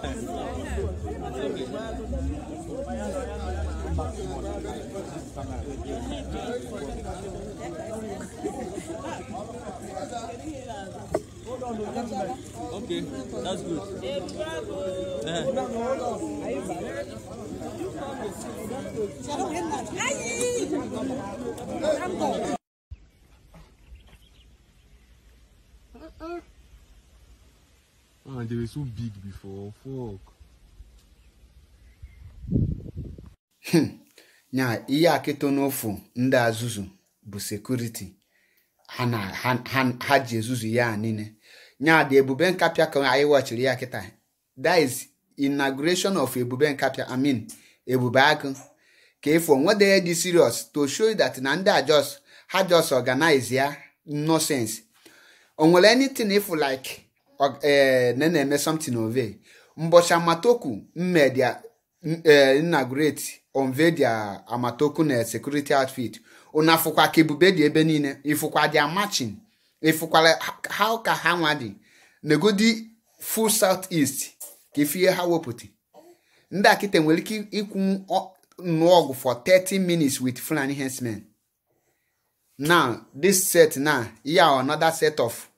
Okay, that's good. Yeah. Man, they were so big before. Fuck. Hmm. nya ihe akịtọ n'ofu ndị azụzụ bụ sekuriti ha ji ezuzu ya niile nya dị ebube nkapịa ka anyị wachiri ya kịta that is inauguration of ebube nkapịa i mean ebube agụ ka ifo nwedeghị dị serious to show that na ndị a just ha just organize ya nonsense o nwere anything if like ee eh, na na-eme something ove mbọchị amatoku mmedia gret onve dia eh, amatoku na security outfit una fụkwa ka ebube dị ebe niile ịfụkwa dia matching ịfụkwala ha ka ha nwa dị negodi full south east ka ifie ha wepụta ndị akịta nwere ike ikwu nnọọ ọgụ for 30 minutes wit Fulani herdsmen na this set na ya another set of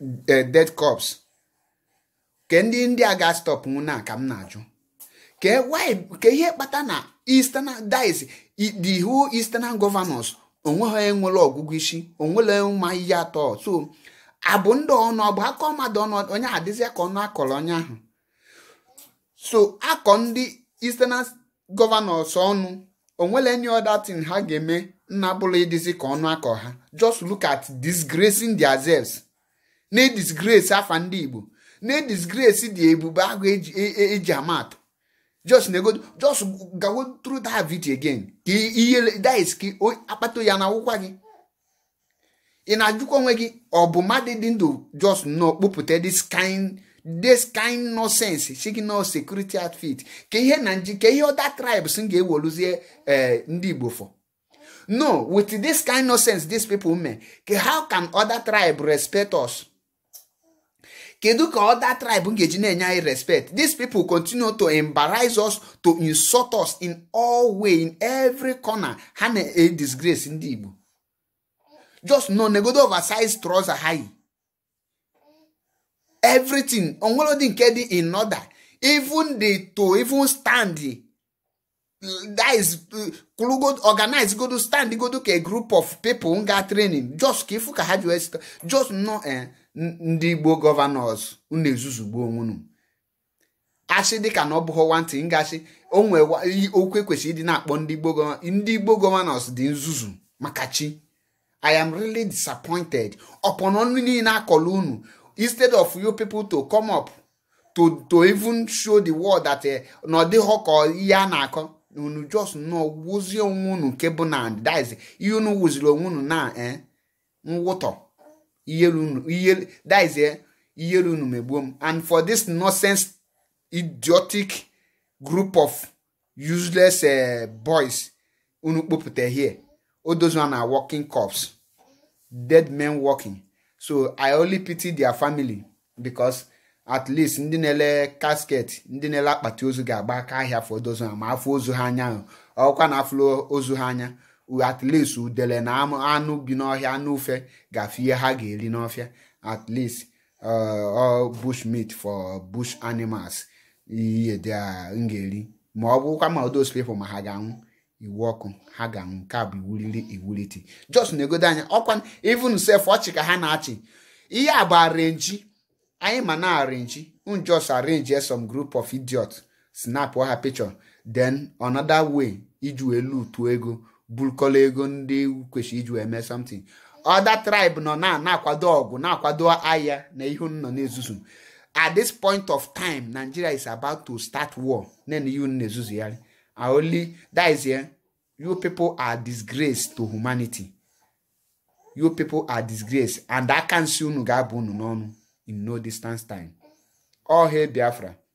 dead corpse ke ndị ndị ga-astọpụ nwụ na ka m na-ajụ ka ihe kpata na eastern dice the whole eastern governors onweghị enwere ọgụgụ isi onwere mma ihe atọ so abụ ndị ọnụ ọbụ akọ mmadụ ọnụ onye adịzịa ka ọnụ akọrọ onye ahụ so akọ ndị eastern governors ọnụ onwere any other thing ha ga-eme nna bụrụ ịdịzi ka ọnụ akọ ha just look at disgracing themselves na-edisgresi afa ndị igbo na-edisgresi dị ebube agụ eji e, e, ama atụ just nego just gawo through that video again ka ihe dis ka akpata ya na akwụkwa gị ị na-ajụkwa onwe gị ọ bụ mmadụ dị ndụ just nọ kpụpụta this kind this kind nonsense signal security outfit ka ihe na nji ka ihe ọda tribes m ga-ewoluzie eh, ndị Igbo for no with this kind nonsense these people mee ka how can other tribe respect us kedu ka other tribe ga-eji na-enye anyị respect these people continue to embarrass us to insult us in all way in every corner ha na-disgrace ndị Igbo just no negodo oversize trouser ha yi everything onwere ụdị nke dị in order even the to even stand that is kuru go organize go do stand go do ka a group of people nga training just ka ifu ka ha ji just no eh ndị igbo gọvanọs unu ezuzugbo onwunu asị dịka na ọ bụghị nwantị ngasị onwe okwu ekwesịrị ịdị na-akpọ ndị igbo ndị igbo gọvanọs dị nzuzu maka chi i am really disappointed ọpọn ọnụ niile akọla unu instead of you people to come up to to even show the world that eh, na ọ dịghọ ka ihe a na-akọ unu just nọ wuzie onwe unu nke bụ na that is ihe unu wuziri onwe unu na nwụtọ eh, iyeru unu eh, unu megbuo m and for this nonsense idiotic group of useless eh, boys unu kpopụta here all na working cops dead men working so i only pity their family because at least ndị na-ele casket ndị na-ele akpati ozu ga-agba aka ahịa for those ma afọ ozu ha anya ọkwa na afọ ozu ha anya at least udele na anụ bi n'ọhịa anụ ufe gafe ihe ha ga-eri n'ọfịa at least uh, bush meat for bush animals ihe dị m ga-eri ma ọ bụkwa ma those people ma ha ga-anwụ iwu ọkụ ha ga-anwụ nke a bụ iwuliri iwuliti just na-egodo anya ọkwa even self ọchị ka ha na-achị ihe a bụ arenji anyị ma na arenji un just arrange some group of idiots snap ha picture den another way iji wee lutuo ego bulkola ego ndị kwesịrị iji wee mee something ọda tribe nọ na na-akwado ọgụ na-akwado agha na ihu nọ na-ezuzu at this point of time Nigeria is about to start war nene ihu na ezuzu only that is you people are disgrace to humanity you people are disgrace and aka nsi unu ga-abụ unu n'ọnụ in no distance time ọha Biafra